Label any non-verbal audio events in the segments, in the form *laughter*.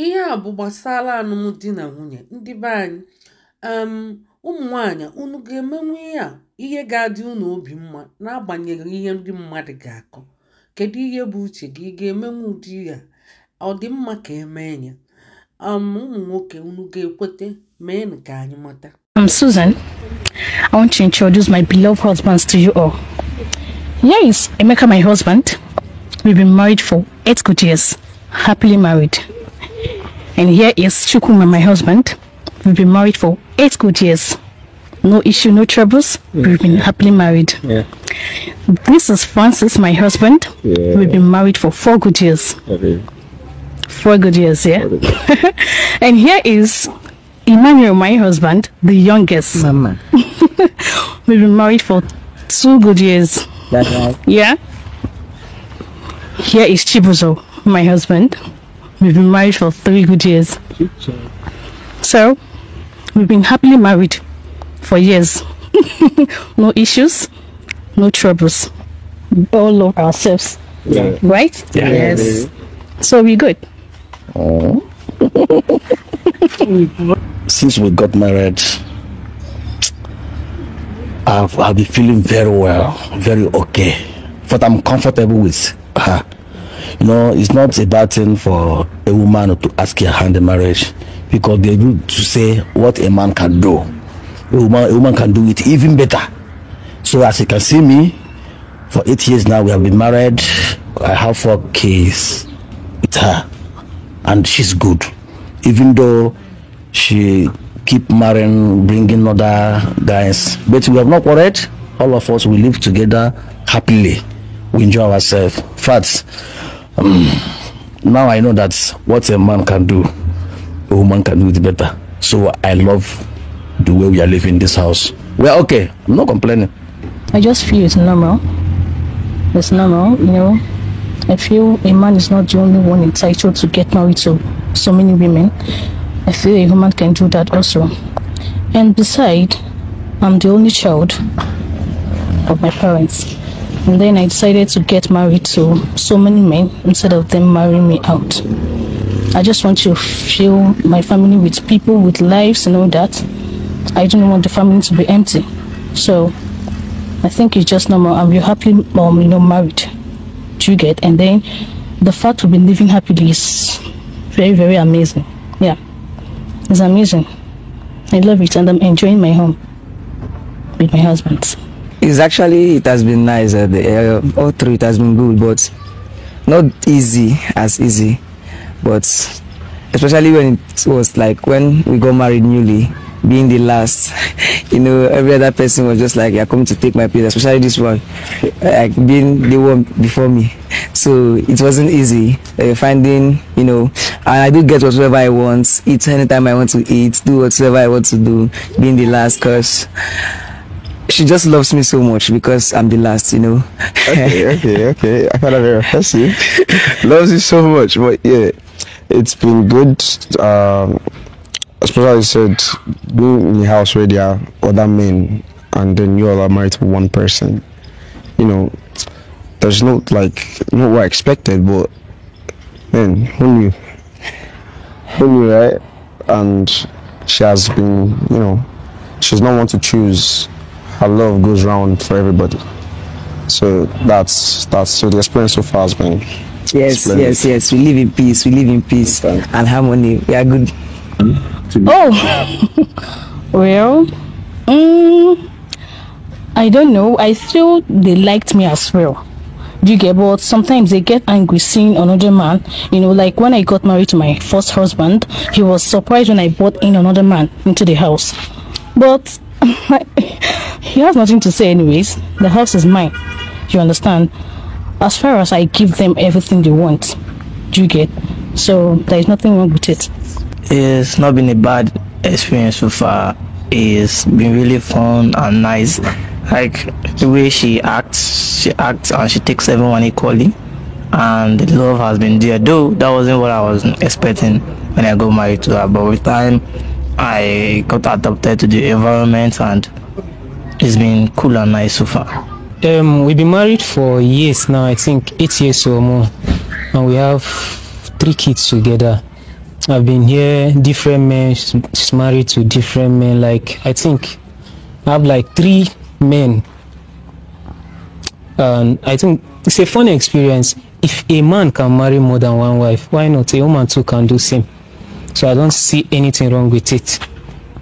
ihe à bụ̀ gbàsara ànụmdi na nwunye ndị be anyị um, ụmụ nwaanyị unu ga emenwu ihe a ihe ga-adị unu obi mma n'agbanyeghị ihe ndị mmadụ ga-akọ kedu ihe bụ uche gị ị ga emenwu ụdị ya ọ dị mma ka emee ya um, ụmụ nwoke unu ga-ekwete mee nke anyị mata I'm um, Susan. I want to introduce my beloved husbands to you all. Here is Emeka, my husband. We've been married for eight good years, happily married. And here is Shukuma, my husband. We've been married for eight good years. No issue, no troubles. Yeah. We've been happily married. Yeah. This is Francis, my husband. Yeah. We've been married for four good years. Okay. Four good years, yeah. *laughs* and here is Emmanuel, my husband, the youngest. Mama. *laughs* We've been married for two good years. That's right. Yeah. Here is Chibuzo, my husband. We've been married for three good years. So, we've been happily married for years. *laughs* no issues, no troubles. We all love ourselves. Yeah. Right? Yeah. Yes. So we're good. *laughs* Since we got married, I've, I've been feeling very well, very okay. But I'm comfortable with her. You know, it's not a bad thing for a woman to ask her hand in marriage because they do to say what a man can do. A woman, a woman can do it even better. So as you can see me, for eight years now we have been married. I have four kids with her, and she's good. Even though she keep marrying, bringing other guys, but we have not worried. All of us we live together happily. We enjoy ourselves. Facts. Um, now I know that what a man can do, a woman can do it better. So I love the way we are living this house. We're okay. I'm not complaining. I just feel it's normal. It's normal, you know. I feel a man is not the only one entitled to get married to so many women. I feel a woman can do that also. And beside, I'm the only child of my parents. And then I decided to get married to so many men instead of them marrying me out. I just want to fill my family with people, with lives, and all that. I don't want the family to be empty. So I think it's just normal. I'm happily mom, you know, married. Do you get? And then the fact we've been living happily is very, very amazing. Yeah. It's amazing. I love it and I'm enjoying my home with my husband. It's actually, it has been nice. Uh, the, uh, all through it has been good, but not easy as easy. But especially when it was like when we got married newly, being the last, *laughs* you know, every other person was just like, "You're coming to take my place," especially this one, like being the one before me. So it wasn't easy uh, finding, you know, I do get whatever I want, eat anytime I want to eat, do whatever I want to do, being the last, cause she just loves me so much because I'm the last, you know. okay, *laughs* okay, okay. I found that very impressive. loves you so much, but yeah, it's been good. Um, especially you said being in the house where there are other men, and then you all are married to one person. You know, there's not like not what I expected, but then who knew? Who knew, right? And she has been, you know, she's not one to choose and love goes round for everybody. So that's that's so the experience so far has been. Yes, splendid. yes, yes. We live in peace. We live in peace okay. and harmony. We are good. Hmm? Oh, *laughs* well, um, I don't know. I feel they liked me as well. Do you get? But sometimes they get angry seeing another man. You know, like when I got married to my first husband, he was surprised when I brought in another man into the house. But *laughs* He has nothing to say, anyways. The house is mine. You understand? As far as I give them everything they want, you get. So there is nothing wrong with it. It's not been a bad experience so far. It's been really fun and nice. Like the way she acts, she acts and she takes everyone equally. And the love has been there. Though that wasn't what I was expecting when I got married to her, but with time I got adapted to the environment and it's been cool and nice so far. Um, we've been married for years now, I think eight years or more. And we have three kids together. I've been here, different men, she's married to different men. Like, I think I have like three men. And I think it's a funny experience. If a man can marry more than one wife, why not? A woman too can do same. So I don't see anything wrong with it.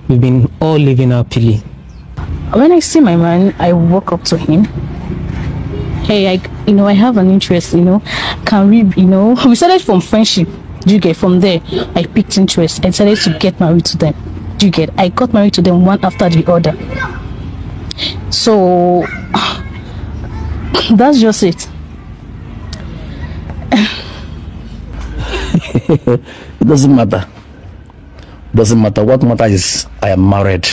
We've been all living happily when I see my man, I walk up to him. Hey, I, you know, I have an interest, you know. Can we, you know, *laughs* we started from friendship. Do you get from there? I picked interest and started to get married to them. Do you get? I got married to them one after the other. So *sighs* that's just it. *laughs* it doesn't matter. Doesn't matter. What matters is I am married.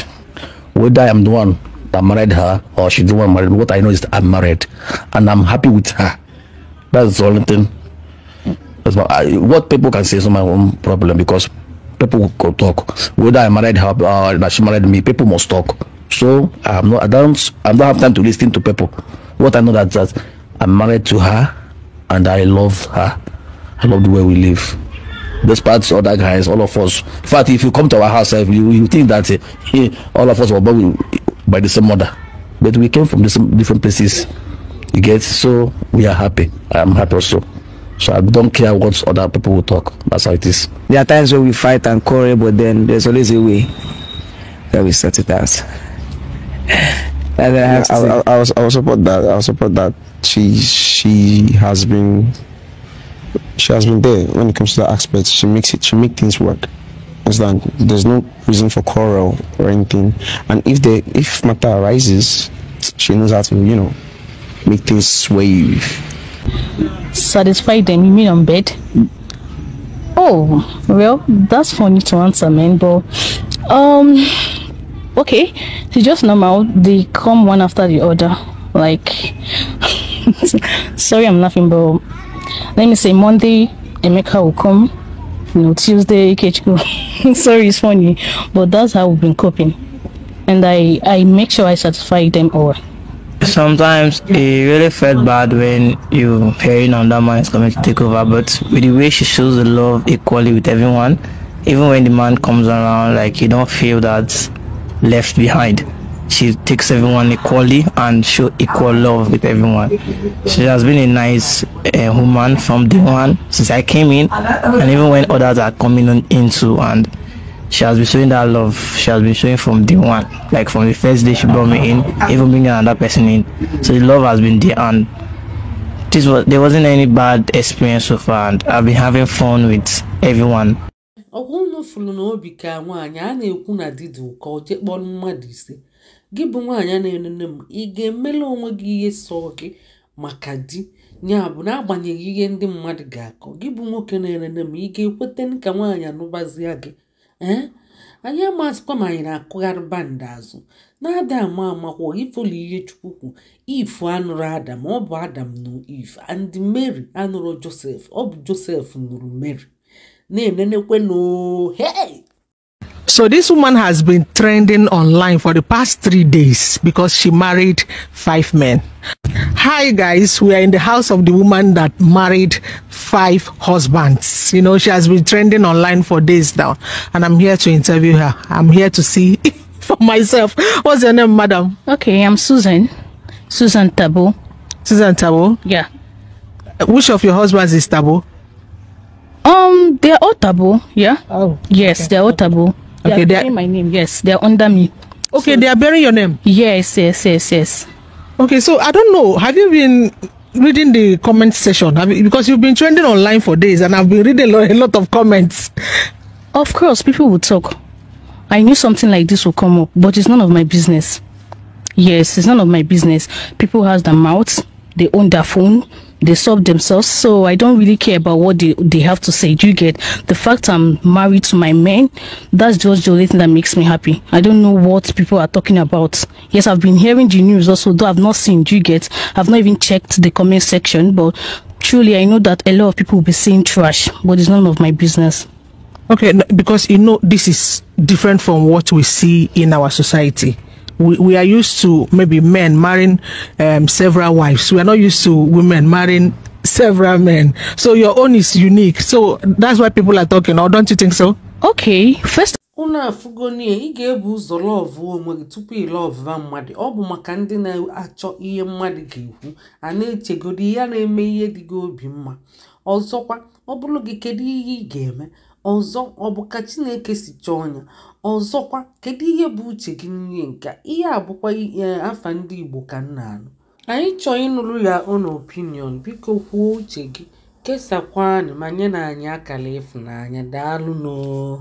whether I'm the one that married her or she's the one married. What I know is I'm married, and I'm happy with her. That's the only thing. That's what, I, what people can say is my own problem because people can talk. Whether I married her or that she married me, people must talk. So I'm not. I don't. I don't have time to listen to people. What I know that that I'm married to her, and I love her. I love the way we live despite all that guys, all of us. In fact, if you come to our house, you, you think that uh, all of us were born by the same mother, but we came from the same, different places. You get so we are happy. I am happy also. So I don't care what other people will talk. That's how it is. There are times when we fight and quarrel, but then there's always a way that we sort it out. *laughs* I, I, I, I, I, I, I will support that. I support that. She she has been she has been there when it comes to that aspect. She makes it. She make things work. Understand? There's no reason for quarrel or anything. And if the if matter arises, she knows how to you know make things wave. Satisfy them? You mean on bed? Oh well, that's funny to answer, man. But um, okay, it's just normal. They come one after the other. Like, *laughs* sorry, I'm laughing, but let me say Monday, Emeka will come. You know, Tuesday, go. *laughs* Sorry, it's funny, but that's how we've been coping, and I I make sure I satisfy them all. Sometimes it really felt bad when you hearing on that man is coming to take over, but with the way she shows the love equally with everyone, even when the man comes around, like you don't feel that left behind she takes everyone equally and show equal love with everyone. She has been a nice uh, woman from day one since I came in, and even when others are coming on into and she has been showing that love. She has been showing from day one, like from the first day she brought me in, even bringing another person in. So the love has been there, and this was there wasn't any bad experience so far, and I've been having fun with everyone. ka nwaanyị a na-ekwu na mmadụ ise gị bụ nwaanyị na enene m ị ga-emela onwe gị ihe sọọ gị maka di ya bụ n'agbanyeghị ihe ndị mmadụ ga-akọ gị bụ nwoke na enene m ị ga-ekweta ka nwaanyị anụbazia gị ee anyị amasịkwa ma anyị na-akụgharị bandị azụ na-ada ama amakwa ifolu ihe chukwu if anụrụ adam ọ bụ adam na if and mary anụrụ josef ọ bụ josef nụrụ mary na-enenekwe noo hey So this woman has been trending online for the past three days because she married five men. Hi guys, we are in the house of the woman that married five husbands. You know, she has been trending online for days now and I'm here to interview her. I'm here to see *laughs* for myself. What's your name, madam? Okay, I'm Susan. Susan Tabo. Susan Tabo? Yeah. Which of your husbands is Tabo? Um, they're all Tabo, yeah. Oh. Yes, okay. they're all Tabo. They okay, are bearing my name. Yes, they are under me. Okay, so, they are bearing your name. Yes, yes, yes, yes. Okay, so I don't know. Have you been reading the comment section? Have you, because you've been trending online for days, and I've been reading a lot of comments. Of course, people will talk. I knew something like this would come up, but it's none of my business. Yes, it's none of my business. People has their mouths; they own their phone, they solve themselves. So I don't really care about what they, they have to say. Do you get the fact I'm married to my man? That's just the only thing that makes me happy. I don't know what people are talking about. Yes, I've been hearing the news also, though I've not seen. Do you get? I've not even checked the comment section, but truly I know that a lot of people will be saying trash, but it's none of my business. Okay, because you know this is different from what we see in our society. we, we are used to maybe men marrying um, several wives. We are not used to women marrying several men. So your own is unique. So that's why people are talking, or don't you think so? Okay, first. unu afụgo na ị e, ebu ụzọ lọvụ onwe gị tupu ị lọvụva mmadụ ọ maka ndị na-achọ ihe mmadụ ga-ekwu a na ya na-eme ihe dị gị obi mma ọzọkwa ọ bụrụ gị kedu ọzọ ọ bụ ka chineke si chọọ ya ọzọkwa kedu ihe bụ uche gị n'ihe nke ihe a bụkwa e, afa ndị igbo ka m na-anụ anyị chọọ ịnụrụ ya ụnụ opinion biko kwuo uche gị kesakwa anyị ma nye na anyị akara ịfụnanya daalụ n'oo